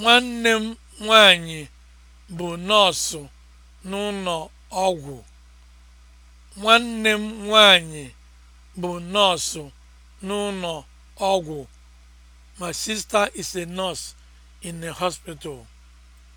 Nwanne m nwanyị bụ nọọsụ n'ụlọ ọgwụ. Nwanne m My sister is a nurse in a hospital.